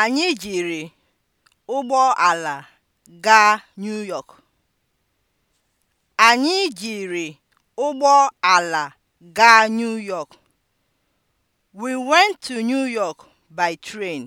Anyị jiri ala gaa New York. Anyị jiri ala gaa New York. We went to New York by train.